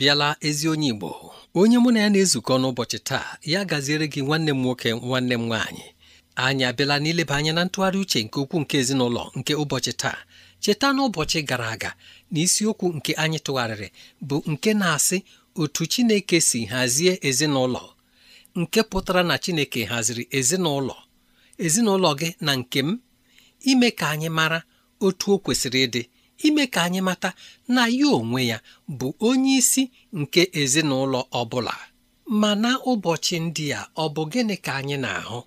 abịala ezi onye Igbo onye mụ na ya na-ezukọ n'ụbọchị taa ya gaziere gị nwanne m nwoke nwanne m nwaanyị anyị abịala n'ileba anya na ntụgharị uche nke ukwuu nke ezinụlọ nke ụbọchị taa cheta n'ụbọchị gara aga na isiokwu nke anyị tụgharịrị bụ nke na-asị otu Chineke si hazie ezinụlọ nke pụtara na Chineke haziri ezinụlọ ezinụlọ gị na nke m ime ka anyị mara otu o kwesịrị ịdị ime ka anyị mata na ya onwe ya bụ onye isi nke ezinụlọ ọ bụla ma na ụbọchị ndị a ọ bụ gịnị ka anyị na-ahụ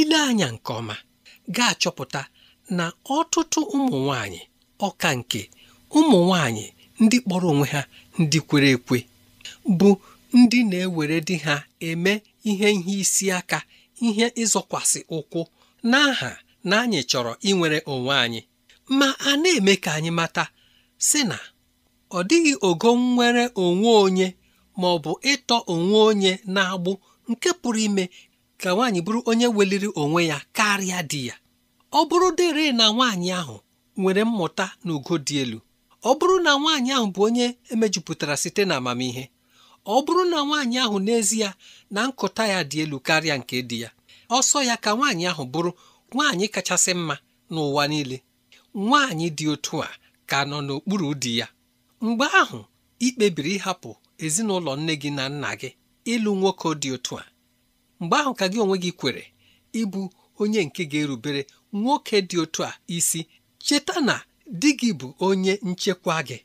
ile anya nke ọma ga-achọpụta na ọtụtụ ụmụ nwanyị ọka nke ụmụ nwanyị ndị kpọrọ onwe ha ndị kwere ekwe bụ ndị na-ewere di ha eme ihe ihe isi aka ihe ịzọkwasị ụkwụ n'aha na anyị chọrọ inwere onwe anyị ma a na-eme ka anyị mata sị na ọ dịghị ogo nwere onwe onye ma ọ bụ ịtọ onwe onye na-agbụ nke pụrụ ime ka nwaanyị bụrụ onye weliri onwe ya karịa di ya ọ bụrụ dịrị na nwaanyị ahụ nwere mmụta na ugo dị elu ọ bụrụ na nwaanyị ahụ bụ onye emejupụtara site na amamihe ọ bụrụ na nwaanyị ahụ n'ezie na nkụta ya dị elu karịa nke di ya ọsọ ya ka nwaanyị ahụ bụrụ nwaanyị kachasị mma n'ụwa niile nwaanyị dị otu a ka nọ n'okpuru di ya mgbe ahụ ị kpebiri ịhapụ ezinụlọ nne gị na nna gị ịlụ nwoke dị otu a mgbe ahụ ka gị onwe gị kwere ịbụ onye nke ga-erubere nwoke dị otu a isi cheta na di gị bụ onye nchekwa gị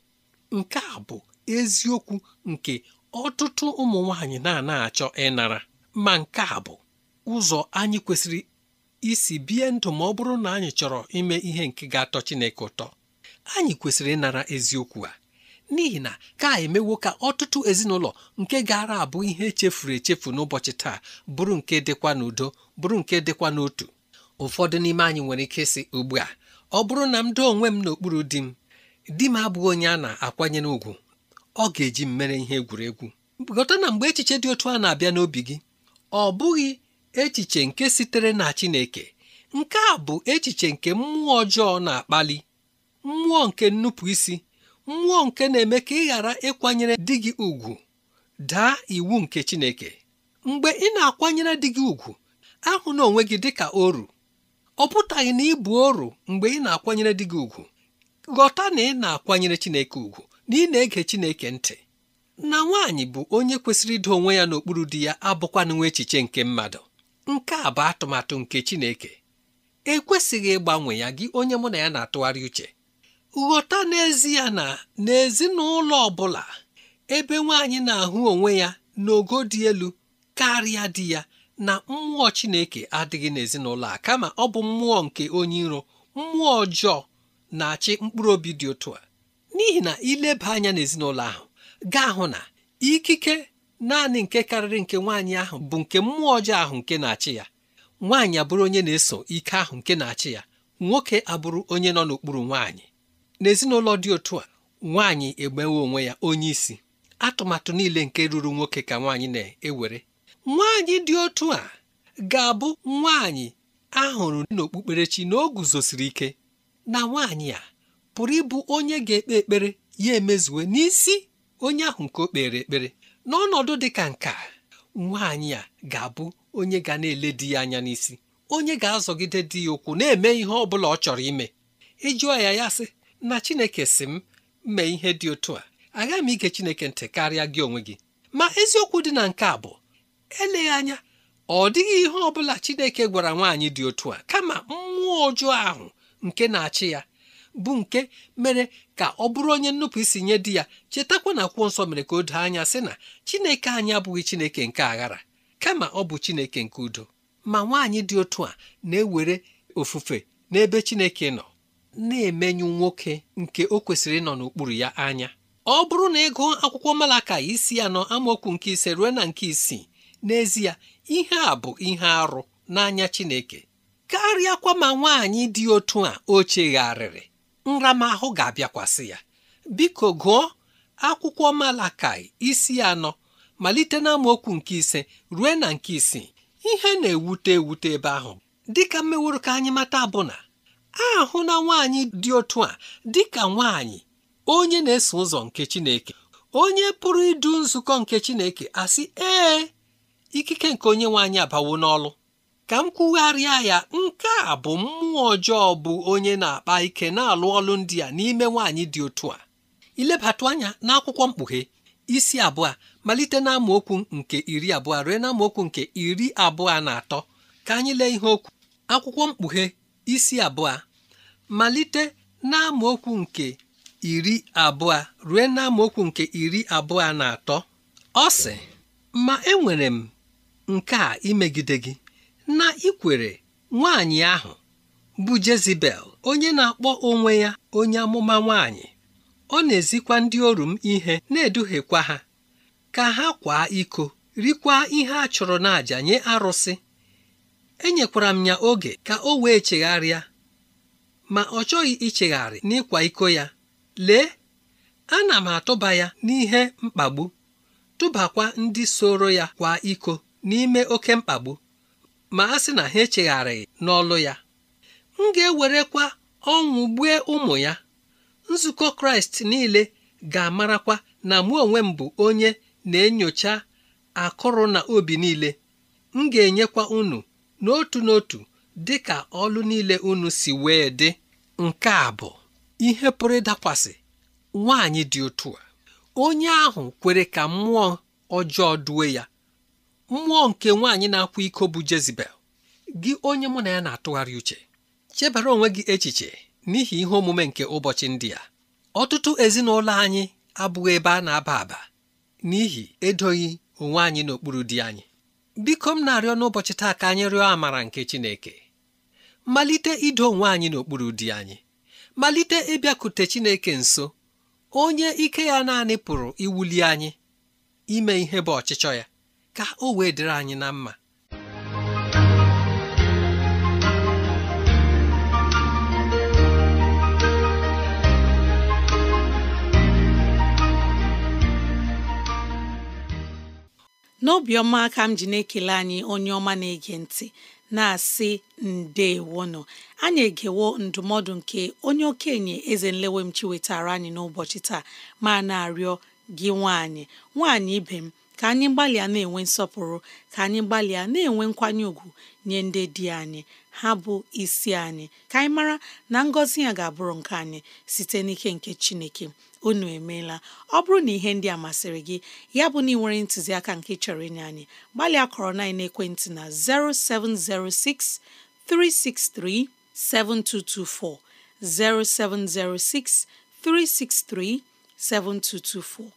nke a bụ eziokwu nke ọtụtụ ụmụ nwaanyị na-ana achọ ịnara ma nke a bụ ụzọ anyị kwesịrị isi bie ndụ ma ọ bụrụ na anyị chọrọ ime ihe nke ga-atọ Chineke ụtọ anyị kwesịrị ịnara eziokwu a n'ihi na ka emewo ka ọtụtụ ezinụlọ nke gara abụ ihe echefuru echefu n'ụbọchị taa bụrụ nke dịkwa n'udo bụrụ nke dịkwa n'otu ụfọdụ n'ime anyị nwere ike sị ugbu a ọ bụrụ na m doo onwe m n'okpuru di m di m abụghị onye a na-akwanyere ùgwù ọ ga-eji m mere ihe egwuregwu gọta na mgbe echiche dị otu a na-abịa n'obi gị ọ bụghị echiche nke sitere na Chineke nke a bụ echiche nke mmụọ ọjọọ na-akpali mmụọ nke nnupụisi mmụọ nke na-eme ka ị ghara ịkwanyere di gị ugwu daa iwu nke Chineke mgbe ị na-akwanyere di gị ugwu ahụ na onwe gị dịka oru ọ pụtaghị na ịbụ oru mgbe ị na-akwanyere di gị ugwu ghọta na ị na-akwanyere Chineke ugwu na ị na-ege Chineke ntị na nwaanyị bụ onye kwesịrị ido onwe ya n'okpuru di ya abụkwa nwa echiche nke mmadụ nke a bụ atụmatụ nke Chineke ekwesịghị ịgbanwe ya gị onye mụ na ya na-atụgharị uche ghọta n'ezie na n'ezinụlọ ọ bụla ebe nwaanyị na-ahụ onwe ya n'ogo dị elu karịa di ya na mmụọ Chineke adịghị n'ezinụlọ a kama ọ bụ mmụọ nke onye iro mmụọ ọjọọ na-achị mkpụrụ obi dị otu a n'ihi na ileba anya n'ezinụlọ ahụ gaa hụ na ikike naanị nke karịrị nke nwaanyị ahụ bụ nke mmụọ ọjọọ ahụ nke na-achị ya nwaanyị abụrụ onye na-eso ike ahụ nke na-achị ya nwoke abụrụ onye nọ n'okpuru nwaanyị n'ezinụlọ dị otu a nwaanyị egbewe onwe ya onye isi atụmatụ niile nke ruru nwoke ka nwaanyị na-ewere nwaanyị dị otu a ga-abụ nwaanyị ahụrụ n'okpukperechi na o guzosiri ike na nwaanyị a pụrụ ịbụ onye ga-ekpe ekpere ya emezuwe n'isi onye ahụ nke o kpere ekpere n'ọnọdụ dị ka nke a nwaanyị a ga-abụ onye ga na-ele di ya anya n'isi onye ga-azọgide di ya ụkwụ na-eme ihe ọ bụla ọ chọrọ ime ịjụọ e ya ya sị na Chineke si m mee ihe dị otu a agaghị m ige Chineke ntị karịa gị onwe gị ma eziokwu dị na nke a bụ eleghị anya ọ dịghị ihe ọ bụla Chineke gwara nwaanyị dị otu a kama mmụọ ọjọọ ahụ nke na-achị ya bụ nke mere ka ọ bụrụ onye nnupụ isi nye di ya chetakwa na akwụkwọ nsọ mere ka o doo anya sị na chineke anyị abụghị chineke nke aghara kama ọ bụ chineke nke udo ma nwaanyị dị otu a na-ewere ofufe n'ebe chineke nọ na-emenyu nwoke nke o kwesịrị ịnọ n'okpuru ya anya ọ bụrụ na ịgụ akwụkwọ malaka isi anọ amaokwu nke ise ruo na nke isii n'ezie ihe a bụ ihe arụ n'anya chineke karịakwa ma nwaanyị dị otu a o chegharịrị nramahụ ga-abịakwasị ya biko gụọ akwụkwọ Malakai isi anọ malite n'amaokwu nke ise ruo na nke isii ihe na-ewute ewute ebe ahụ dịka mmeworo ka anyị mata bụ na ahụ na nwaanyị dị otu a dịka nwaanyị onye na-eso ụzọ nke Chineke onye pụrụ idu nzukọ nke Chineke asị ee ikike nke onye nwaanyị abawo n'ọlụ ka m kwugharịa ya nke a bụ mmụọ ọjọọ bụ onye na-akpa ike na-alụ ọlụ ndị a n'ime nwaanyị dị otu a ilebatụ anya n'akwụkwọ mkpughe isi abụọ malite na nke iri abụọ ruo na nke iri abụọ na atọ ka anyị lee ihe okwu akwụkwọ mkpughe isi abụọ malite na nke iri abụọ rue na nke iri abụọ na atọ ọ sị ma enwere m nke a imegide gị na ikwere nwaanyị ahụ bụ Jezibel onye na-akpọ onwe ya onye amụma nwaanyị ọ na-ezikwa ndị oru m ihe na-eduhiekwa ha ka ha kwaa iko rikwa ihe a chọrọ n'àjà nye arụsị enyekwara m ya oge ka o wee chegharịa ma ọ chọghị ichegharị n'ịkwa iko ya lee ana m atụba ya n'ihe mkpagbu tụbakwa ndị soro ya kwa iko n'ime oke mkpagbu ma a sị na ha echegharịghị n'ọlụ ya m ga-ewerekwa ọnwụ gbue ụmụ ya nzukọ kraịst niile ga-amarakwa na mụ onwe m bụ onye na-enyocha akụrụ na obi niile m ga-enyekwa unu n'otu n'otu dị ka ọlụ niile unu si wee dị nke a bụ ihe pụrụ ịdakwasị nwaanyị dị otu a onye ahụ kwere ka mmụọ ọjọọ duwe ya mmụọ nke nwaanyị na-akwa iko bụ Jezebel gị onye mụ na ya na-atụgharị uche chebara onwe gị echiche n'ihi ihe omume nke ụbọchị ndị a ọtụtụ ezinụlọ anyị abụghị ebe a na-aba aba n'ihi edoghị onwe anyị n'okpuru di anyị biko m na-arịọ n'ụbọchị taa ka anyị rịọ amara nke Chineke malite ido onwe anyị n'okpuru di anyị malite ịbịakute Chineke nso onye ike ya naanị pụrụ iwuli anyị ime ihe bụ ọchịchọ ya ka o wee dịrị anyị na mma n'obiọma ka m ji na-ekele anyị onye ọma na-ege ntị na-asị ndeewono anyị egewo ndụmọdụ nke onye okenye eze nlewemchi wetara anyị n'ụbọchị taa ma na-arịọ gị nwanyị, nwaanyị ibe m ka anyị gbalịa na-enwe nsọpụrụ ka anyị gbalịa na-enwe nkwanye ùgwù nye ndị di anyị ha bụ isi anyị ka anyị mara na ngọzi ya ga-abụrụ nke anyị site n'ike nke Chineke unu emeela ọ bụrụ na ihe ndị a masịrị gị ya bụ na ị nwere ntụziaka nke chọrọ ịnye anyị gbalịa kọrọ na ekwentị na 0706 363 7224 0706 363 7224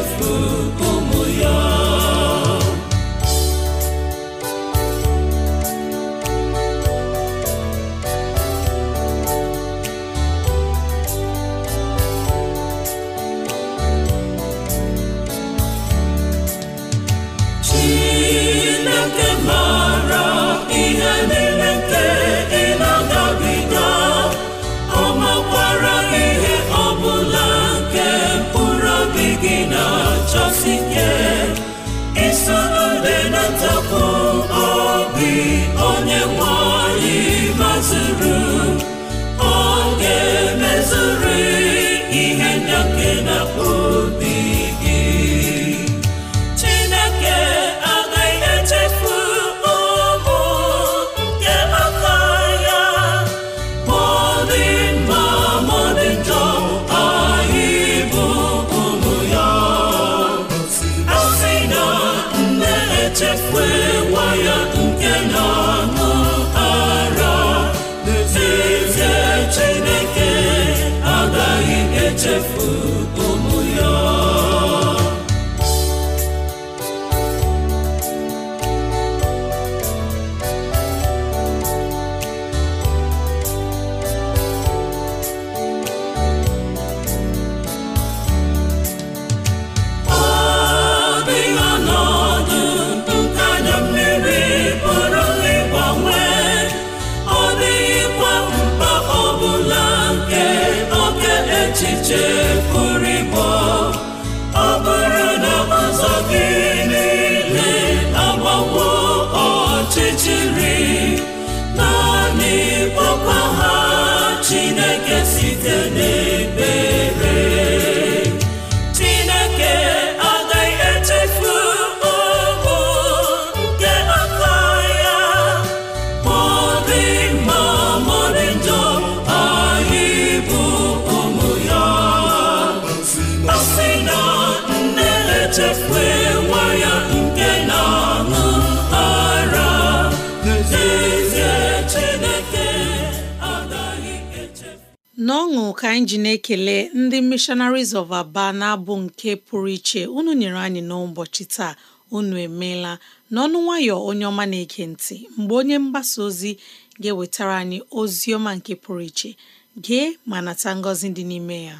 beautiful. n'ọṅụ ka anyị ji na-ekele ndị missionaries of Aba na-abụ nke pụrụ iche unu nyere anyị n'ụbọchị taa unu emeela n'ọnụ nwayọ onye ọma na-ege ntị mgbe onye mgbasa ozi ga-ewetara anyị ozi ọma nke pụrụ iche gee ma nata ngọzi dị n'ime ya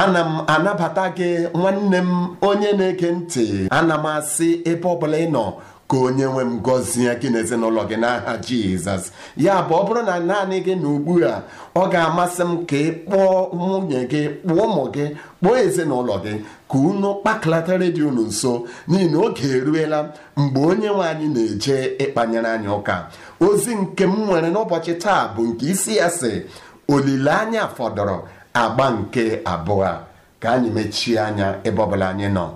ana m anabata gị nwanne m onye na-ege ntị ana m asị ebe ọ ị nọ ka onye nwe m gọzie gị na ezinụlọ gị n'aha jizọs ya bụ ọ bụrụ na naanị gị na ugbu a ọ ga-amasị m ka ị kpọọ nwunye gị kpọọ ụmụ gị kpọọ ezinụlọ gị ka unu kpakọlatara redio unu nso n'ihi na oge eruela mgbe onye nwe anyị na-eje ịkpanyere anyị ụka ozi nke m nwere n'ụbọchị taa bụ nke isi ya si olileanya fọdụrụ agba nke abụọ ka anyị mechie anya ebe ọbụla anyị nọ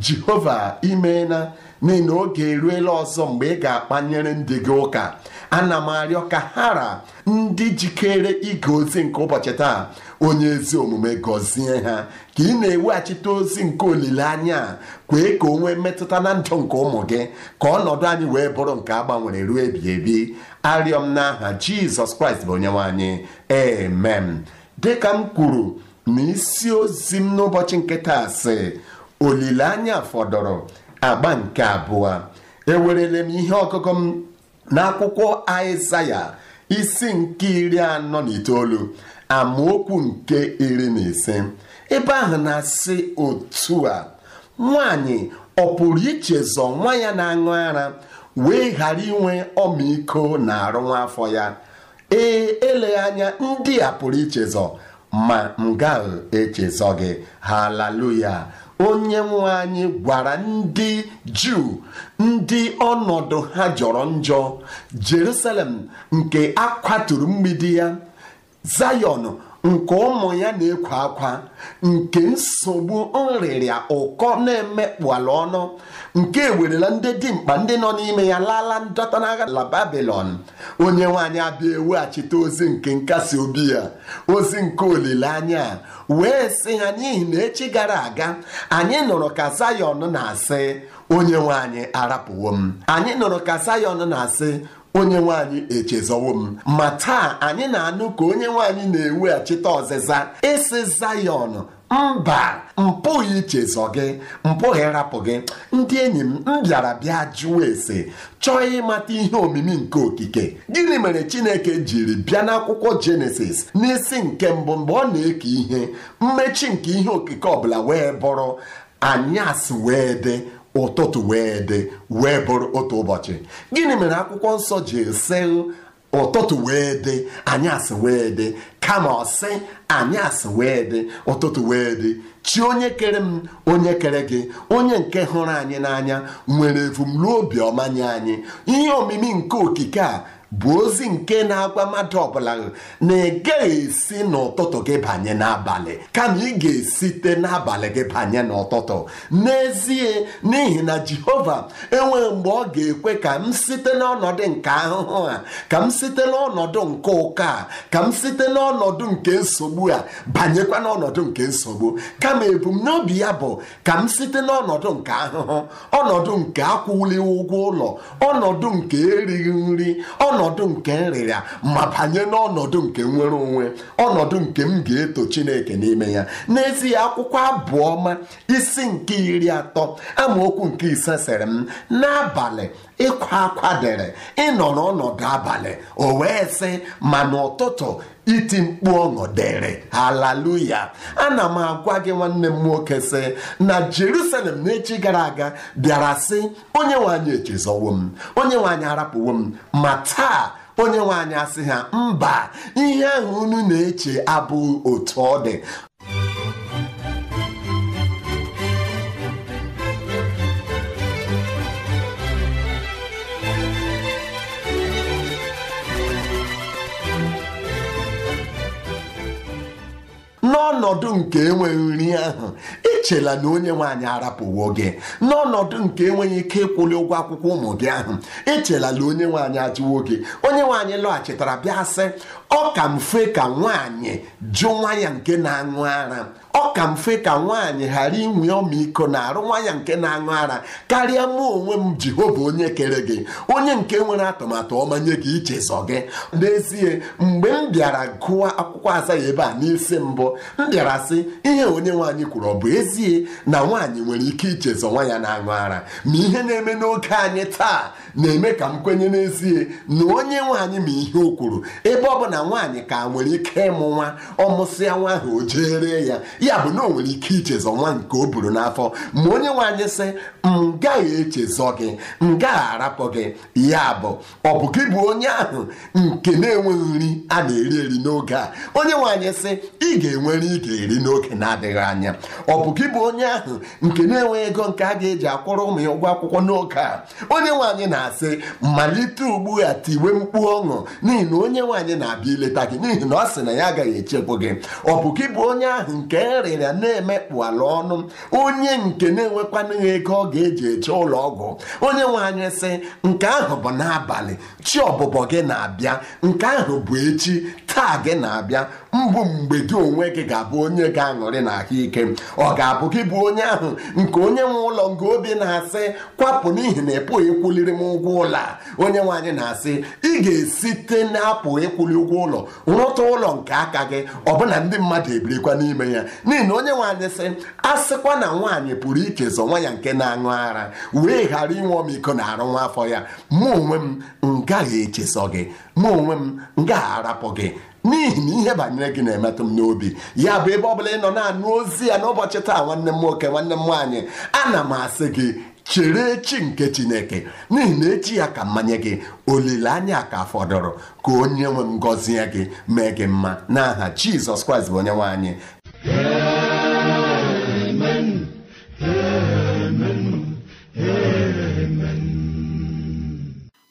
jehova imeela n'ihi na oge eruela ọzọ mgbe ị ga-akpanyere ndị gị ụka ana m arịọ ka hara ndị jikere ige ozi nke ụbọchị taa onye ezi omume gọzie ha ka ị na-eweghachite ozi nke olileanya kwee ka o nwee mmetụta na ndụ nke ụmụ gị ka ọnọdụ anyị wee bụrụ nke a gbanwere ruo ebi ebi arịọ m n'aha jizọs kraịst bụ onye anyị amen dịka m kwuru na isi ozi m n'ụbọchị nke taa sị olileanya fọdụrụ agba nke abụọ ewerele m ihe ọkụkụ m n'akwụkwọ Aịzaya isi nke iri anọ na itoolu amaokwu nke iri na ise ebe ahụ na-asị otu a nwaanyị ọ pụrụ ichezọ nwa ya na-aṅụ ara wee ghara inwe ọmịiko na arụ nwa afọ ya ee eleghị anya ndị a pụrụ ichezọ ma m gaghị echezọ gị haleluya onye nwe anyị gwara ndị juu ndị ọnọdụ ha jọrọ njọ jerusalem nke akwaturu mgbidi ya zayọnu. nke ụmụ ya na ekwe akwa nke nsogbu nrịrịa ụkọ na ala ọnụ nke ewerela ndị dimkpa ndị nọ n'ime ya lala ndọta na la babilon onye nwanyị abịa eweghachite ozi nke nkasi obi ya ozi nke olileanya wee sị ha n'ihi na echi gara aga anyị nụrụ ka Zayọn na-asị onye nwanyị arapụwo m anyị nụrụ ka Zayọn na-asị onye nwaanyị echezọwo m ma taa anyị na-anụ ka onye nwanyị na-eweghachite ọzịza ịsị Zayọn mba mpụghị ichezọ gị mpụghị rapụ gị ndị enyi m m bịara bịa jụọ ese chọọ ịmata ihe omimi nke okike gịnị mere Chineke jiri bịa n'akwụkwọ Jenesis n'isi nke mbụ mgbe ọ na-eke ihe mmechi nke ihe okike ọbụla wee bụrụ anyasị wee dị ụtụtụ wee dị wee bụrụ otu ụbọchị gịnị mere akwụkwọ nsọ ji esi ụtụtụ wee dị anyasị wee dị kama ọsị anyasị wee dị ụtụtụ wee dị chi onye kere m onye kere gị onye nke hụrụ anyị n'anya nwere ebumnobi ọma nye anyị ihe omimi nke okike a bụ ozi nke na-agwa mmadụ ọbụla na ị gaghị esi n'ụtụtụ gị banye n'abalị kama ị ga-esite n'abalị gị banye n'ụtụtụ n'ezie n'ihi na Jehova enweghị mgbe ọ ga-ekwe ka m site n'ọnọdụ nke ahụhụ a ka m site n'ọnọdụ nke ụka a ka m site n'ọnọdụ nke nsogbu a banyekwa n'ọnọdụ nke nsogbu kama ebumnobi ya bụ ka m site n'ọnọdụ nke ahụhụ ọnọdụ nke akwụlighị ụgwọ ụlọ ọnọdụ nke erighị nri ọnọdụ nke nrịrịa ma banye n'ọnọdụ nke nwere onwe ọnọdụ nke m ga-eto chineke n'ime ya n'ezie akwụkwọ abụọ ma isi nke iri atọ amaokwu nke ise sịrị m n'abalị ịkwa akwa dere ịnọrọ ọnọdụ abalị o wee sị ma n'ụtụtụ iti mkpu ọṅụ dịrị haleluya ana m agwa gị nwanne m nwoke sị na jerusalem n'echi gara aga bịara sị onye nwanyị echezọwo m onye nwanyị arapụwo m ma taa onye nwaanyị asị ha mba ihe ahụ unu na-eche abụghị otu ọ dị n'ọnọdụ nke enweghị nri ahụ echela na onye nwanyị arapụwo gị n'ọnọdụ nke enweghị ike ịkwụli ụgwọ akwụkwọ ụmụ gị ahụ ichela na onye nwanyị ajụwo gị onye nwanyị lọghachitara bịa sị ọ ka mfe ka nwaanyị jụ nwa ya nke na-aṅụ ara ọ ka mfe ka nwaanyị ghara inwe ọmịiko na arụ nwa ya nke na-aṅụ ara karịa mụ onwe m Jehova onye kere gị onye nke nwere atụmatụ ọma nye gị ichezọ gị n'ezie mgbe m bịara gụọ akwụkwọ azaghị ebe a n'isi mbụ m bịara sị ihe onye nwaanyị kwuru ọ bụ ezie na nwaanyị nwere ike ichezọ nwa ya na-aṅụ ara ma ihe na-eme n'oge anyị taa na-eme ka m kwenye n'ezie na onye nwaanyị ma ihe o kwuru ebe ọ bụ na nwaanyị ka nwere ike ịmụ nwa ọmụsịa nwa ahụ o jere ya ya bụ na o nwere ike ichezọ nwa nke o buru n'afọ ma onye nwaanyị sị m gaghị echezọ gị m gaghị arapụ gị ya bụ ọ bụ gị bụ onye ahụ nke na-enweghị nri a na-eri eri n'oge a onye nwaanyị sị ị ga-enwere ị ga-eri n'oge na-adịghị anya ọ bụ gị bụ onye ahụ nke na-enweghị ego nke a ga-eji akwụrụ ụmụ ya ụgwọ akwụkwọ n'oge a onye nwaanyị na na-asị malite ugbu a tiwe mkpu ọṅụ n'ihi na onye nwaanyị na-abịa ileta gị n'ihi na ọ sị na ya agaghị echekwu gị ọ bụ gị bụ onye ahụ nke rịrịa na-emekpụ ala ọnụ onye nke na-enwekwanụghị ego ọ ga-eji eche ụlọ ọgwụ onye nwaanyị sị nke ahụ bụ n'abalị chi ọbụbọ gị na-abịa nke ahụ bụ echi taa gị na-abịa mbụ mgbe gị onwe gị ga-abụ onye ga-aṅụrị na ahụike ọ ga-abụ gị bụ onye ahụ nke onye nwe ụlọ nke obi na-asị kwapụ n'ihi na ịpụghị ịkwụliri m ụgwọ ụlọ a onye nwe anyị na-asị ị ga-esite na-apụ ịkwụli ụgwọ ụlọ rụta ụlọ nke aka gị ọbụna ndị mmadụ ebirikwa n'ime ya n'ihi na onye nwe anyị sị asịkwa na nwaanyị pụrụ ichezọ nwa ya nke na-aṅụ ara wee ghara inwe ọmịiko na arụ nwa afọ ya mụ onwe m m gaghị echezọ gị mụ onwe m ngaghị arapụ gị n'ihi na ihe banyere gị na-emetụ m n'obi ya bụ ebe ọ bụla ị nọ na-anụ ozi ya n'ụbọchị taa nwanne m nwoke nwanne m nwaanyị ana m asị gị chere echi nke chineke n'ihi na echi ya ka mmanye gị olileanya ka fọdụrụ ka onye nwe m gọzie gị mee gị mma n'aha jizọs kraịst bụ onye nwe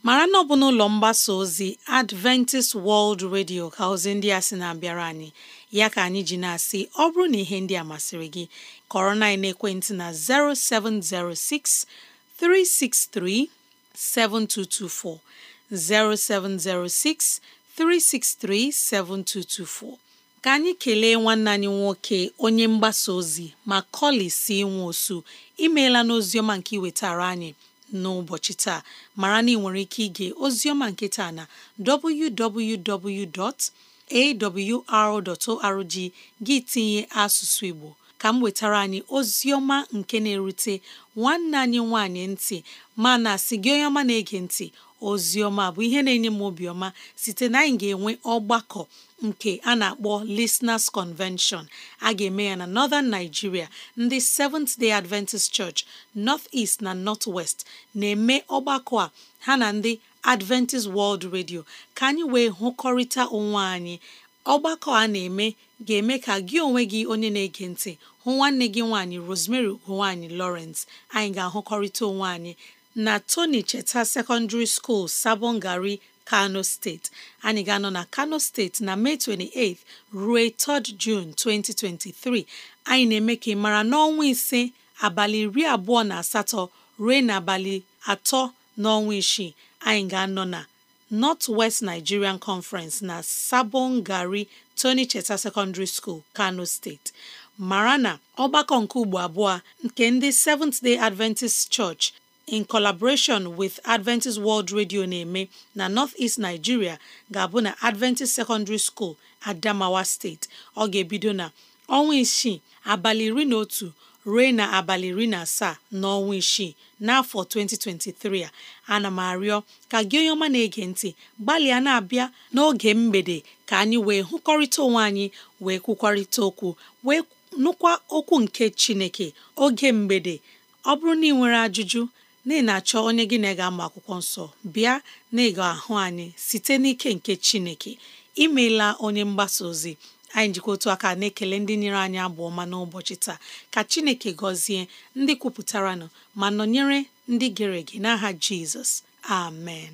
mara na ọ bụ n'ụlọ mgbasa ozi Adventist World Radio ka ozi ndị a sị na-abịara anyị ya ka anyị ji na-asị ọ bụrụ na ihe ndị a masịrị gị kọrọ na ekwentị na 0706 363 7224 0706 363 7224 ka anyị kelee nwanne anyị nwoke onye mgbasa ozi ma kọlị si nwa osu imeela n'oziọma nke iwetara anyị n'ụbọchị taa mara na ị nwere ike ige oziọma nke taa na www.awr.org gị tinye asụsụ Igbo ka m wetara anyị oziọma nke na-erute nwanne anyị nwanyị ntị mana sị gị onye ọma na-ege ntị oziọma bụ ihe na-enye m obiọma site na anyị ga-enwe ọgbakọ nke a na-akpọ Listeners Convention a ga-eme ya na Northern Nigeria ndị Seventh Day Adventist Church North East na North West na-eme ọgbakọ a ha na ndị Adventist World Radio ka anyị wee hụkọrịta onwe anyị ọgbakọ a na-eme ga-eme ka gị onwe gị onye na-ege ntị hụ nwanne gị nwaanyị Rosemary ugonwaanyị Lawrence anyị ga-ahụkọrịta onwe anyị na Tony Cheta Secondary School sabongary kano steeti anyị ga-anọ na kano steeti na mee 28 ruo 3 jun 2023 anyị na-eme ka ị mara n'ọnwa ise abalị iri abụọ na asatọ ruo n'abalị atọ n'ọnwa isii anyị ga-anọ na North West Nigerian Conference na Sabon Gari Tony Cheta Secondary School, Kano State. mara na ọgbakọ nke ugbo abụọ nke ndị Seventh Day Adventist Church in collaboration with Adventist World Radio na-eme na North-East Nigeria ga-abụ na Adventist Secondary School Adamawa State ọ ga-ebido na ọnwa isii abalị iri na otu ruo na abalị iri na asaa n'ọnwa isii n'afọ 2023 a ana m arịọ ka gị onye ọma na-ege ntị gbalịa na-abịa n'oge mgbede ka anyị wee hụkọrịta onwe anyị wee kwukwarịta okwu wee nụkwa okwu nke Chineke oge mgbede ọ bụrụ na ị nwere ajụjụ na ị na-achọ onye gị na ị ga ama akwụkwọ nsọ bịa na ị ahụ anyị site n'ike nke Chineke imeela onye mgbasa ozi anyị njikọ otu aka na-ekele ndị nyere anyị abụ ọma n'ụbọchị taa ka Chineke gọzie ndị kwupụtara kwupụtaranụ ma nọnyere ndị gere ege n'aha Jizọs amen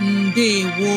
Ndewo